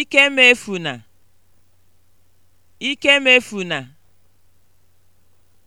Ikemefuna. Ikemefuna